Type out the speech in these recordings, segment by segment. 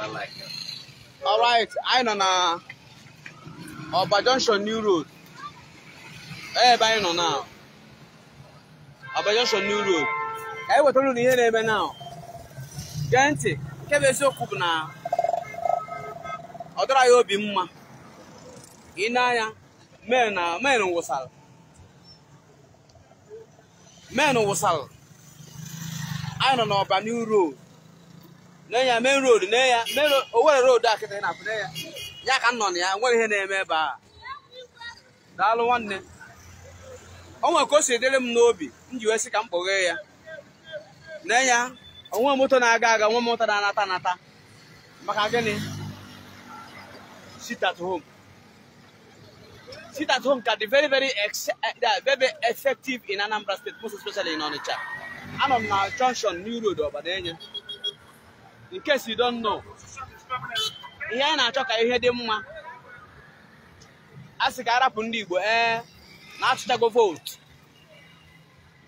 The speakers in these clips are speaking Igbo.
All right, anyị nọ na Ọba Junction New Road. Eh, ebe anyị nọ na Ọba Junction New Road. Anyị wetara unu ihe na-eme na gee ntị nke bụ bụ na ọ dọrọ ya obi mma I na-anya men na men wụsara men wụsara anyị nọ n'Ọba New Road. nee ya main road nee ya Owerri road a kịta na-apụ nee ya ya ka nọ na ya nwere ihe na-eme ebe a daalụ nwanne o nwere ka o si edere m n'obi m ji wee sị ka m kpọghee ya nee ya onwe moto na-aga aga nwe moto na-anata anata maka gịnị sit at home sit at home ka dị very eh, very very effective in Anambra State most especially in Onitsha anọ m na junction New Road Obadenye in case you don't ihe anyị na-achọ ka ihe dị mma a sị ka arapụ ndị Igbo ee na-atụchago vootu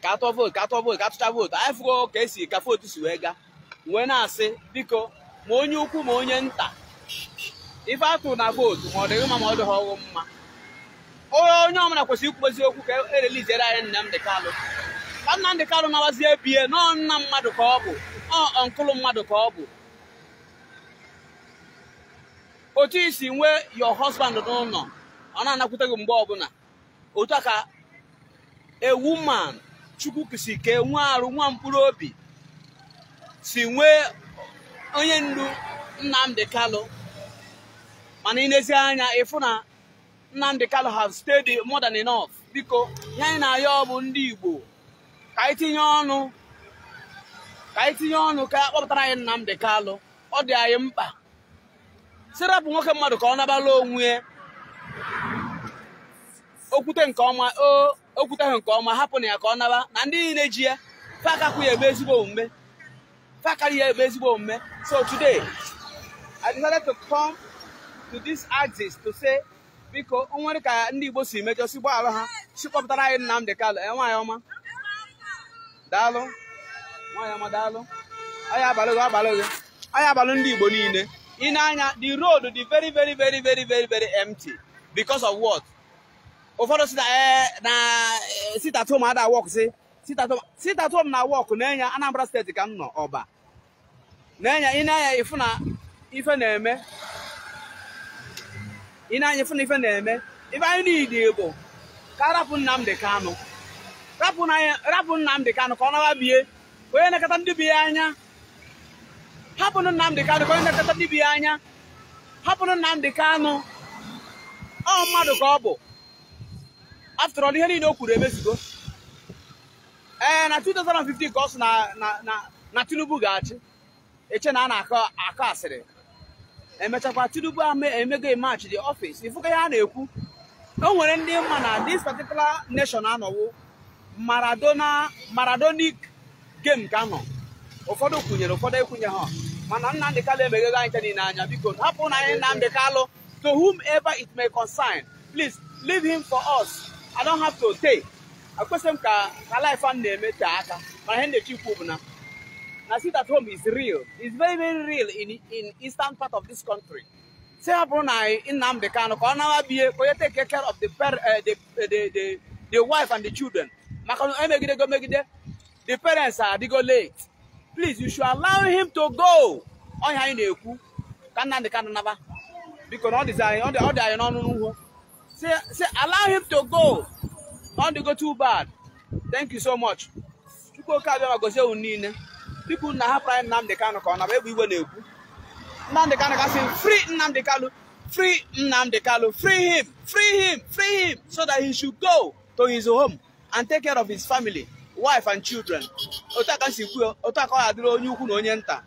ka atụọ vootu ka atụọ vootu ka atụcha vootu anyị fụgo ka esi ka vootu si wee gaa wee na-asị biko ma onye ukwu ma onye nta ife atụ na vootu ma ọ dịghị mma ma ọ dịghị ọghụ mma onye ọmụna kwesịrị ikwubozi okwu ka ereliziere anyị Nnamdị Kalụ ka ndị Kalụ nawazie bie nọọ nna mmadụ ka ọ bụ ọ nkụlụ mmadụ ka ọ bụ otu isi nwee your husband n'ụlọ ọ na-anakwute gị mgbe ọbụla otu a ka a woman chukwu si kee nwa arụ nwa mkpụrụ obi si nwee onye ndu Nnamdi kalụ mana ịnezi anya ịfụ na Nnamdi Kalu ha stayed more modern enough biko ihe anyị na-ayọ ọ ndị Igbo ka anyị ọnụ ka anyị tinye ọnụ ka akpọpụtara anyị Nnamdi Kalu ọ dị anyị mkpa sirapụ nwoke mmadụ ka ọ nabala onwe okwute nke ọma o okwuteghị nke ọma hapụ na ya ka ọ naba na ndị niile ji ya fakakwu ya ebe ezigbo omume fakari ya ebe ezigbo omume so today I decided to come to this axis to say biko nwere ka ndị Igbo si mejọ si gbaghara ha kpọpụtara anyị Nnamdi Kanu e, nwaanyị ọma daalụ nwaanyị ọma daalụ ọ abalị gị abalị gị ọ abalị ndị Igbo niile In Anya, the road is very, very, very, very, very, very empty. Because of what? Ụfọdụ si na eh, na eh, sit at ada work si sit at na work na-enye Anambra steeti ka m nọ ọba na-enye ị na na ife na-eme ị na na ife na-eme ife anyị niile bụ ka rapụ Nnamdi Kanu rapụ Nnamdi Kanu ka ọ nawa bie onye nakata ndị bi ya anya hapụnụ Nnamdị Kanụ ka onye na-ekọta ndị ya anya hapụnụ Nnamdị Kanụ ọ mmadụ ka ọ bụ tụrụ all ihe niile o kwuru emezigo ee eh, na 2015 ka ọ sụ na Tinubu ga-achị eche na a na-akọ akọ asịrị emechakwa Tinubu emego emachi the office ifuka ihe a na-ekwu o nwere ndị mma na this particular nation anọwo Maradona Maradonic game ka anọ. ụfọdụ kwunyere ụfọdụ ekwunye ha mana Nnamdị Kalụ emeghego anyị niile n'anya biko hapụ na anyị Nnamdị Kalụ to whomever it may concern please leave him for us I don't have to take akwesịrị m ka ka life m na-eme tee aka mana ihe na-echi ikwu bụ na na sit at home is real is very very real in in eastern part of this country si ha bụrụ na anyị Nnamdị Kalụ ka ọ nawa bie ka onye take care of eh, eh, the the the wife and the children maka na emegidego megide the parents adịgo late please you should allow him to go ọnya anyị na-ekwu ka Nnamdi Kanu naba biko na ọ dị anyị n'ọnụ n'ugwu say allow him to go not to go too bad thank you so much chukwu oke abịa ma gozie unu niile pipu na hapụrụ anyị Nnamdi Kanu ka ọ naba egbe igwe na-ekwu Nnamdi Kanu kasị free Nnamdi Kanu free Nnamdi Kanu free him free him free him so that he should go to his home and take care of his family wife and children otu aka si kwuo otu aka adịrị onye ukwu na onye nta